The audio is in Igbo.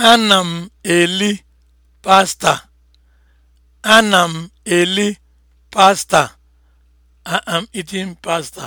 Ana m eli pasta. Ana m eli pasta. I am eating pasta.